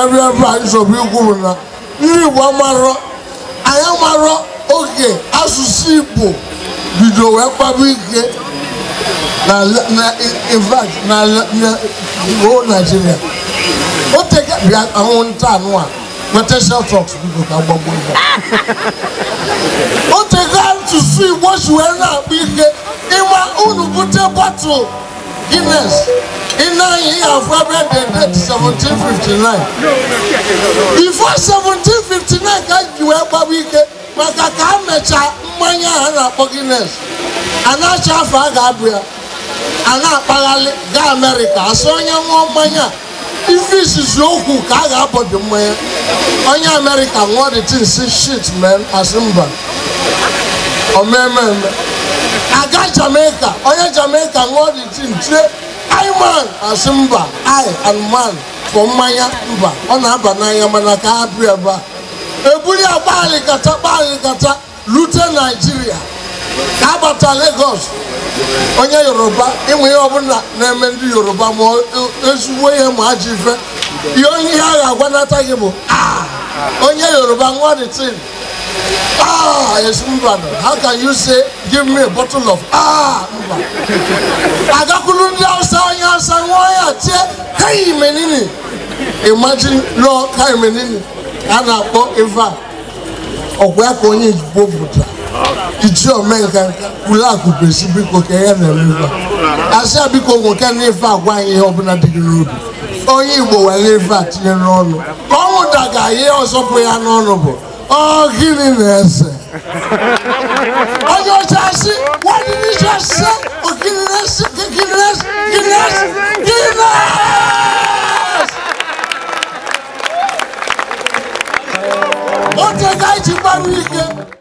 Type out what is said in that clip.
karịa ebe anyị nsogbu ikwuru na ndị Igbo amarọ anyị amarọ oge asụsụ Igbo bido wee kpaba ike na infact na o Naijiria o teka bịa anwụnta anụ a talks biko ka gbagbo igbo o teka asụsụ Igbo si wee na-akpa ike ịma unu bute bọtụl Guinness in nine years February the date seventeen fifty before seventeen fifty nine ka juwe gbabu I maka ka a mecha mmanya a na-akpọ Guinness a na-acha afọ a ga-abụ ya a na-akpaghalị gaa Amerịka asị onye ṅụọ mmanya ife izizi okwu ka a shit man asị mba o oh, man. mee mee aga jamaica onye jamaica ṅụọ dị tin tie man asị mba i and man fọ mmanya mba ọ na-aba n'anya mana ka ha bịa ebe a eburu ya gbaalịkata gbaalịkata rute naijiria ka agbata legos onye yoruba ịmụ ihe ọbụla na-eme ndị yoruba ma e, ezigbo ihe ma ajọ ife ihe ihe a ga-agwanata gị bụ ah! onye yoruba ṅụọ dị Ah, yes, Mbano. How can you say, give me a bottle of ah, Mbano? Agakulundi outside, outside, why are Hey, menini. Imagine, Lord, hey, menini. And I Eva. Or where can you go, Iji ome nke ule akụ kwesị biko ka ya na-eme a biko nwoke ọbụla dị gị onye Igbo were ife a tinye n'ọnụ ka ọ ihe ya n'ọnụ bụ ọ̀gìnì n'ẹsẹ̀ ọjọ́ ọjà sí wọ́n ní ní ìjọ ṣe ọ̀gìnì n'ẹsẹ̀ gìnì n'ẹsẹ̀ gìnì n'ẹsẹ̀ gìnì n'ẹsẹ̀. ó tẹ̀ ká ìjì bá mi ike.